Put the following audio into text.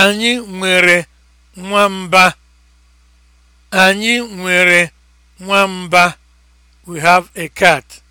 Anyị nwere nwamba. Anyị nwere nwamba. We have a cat.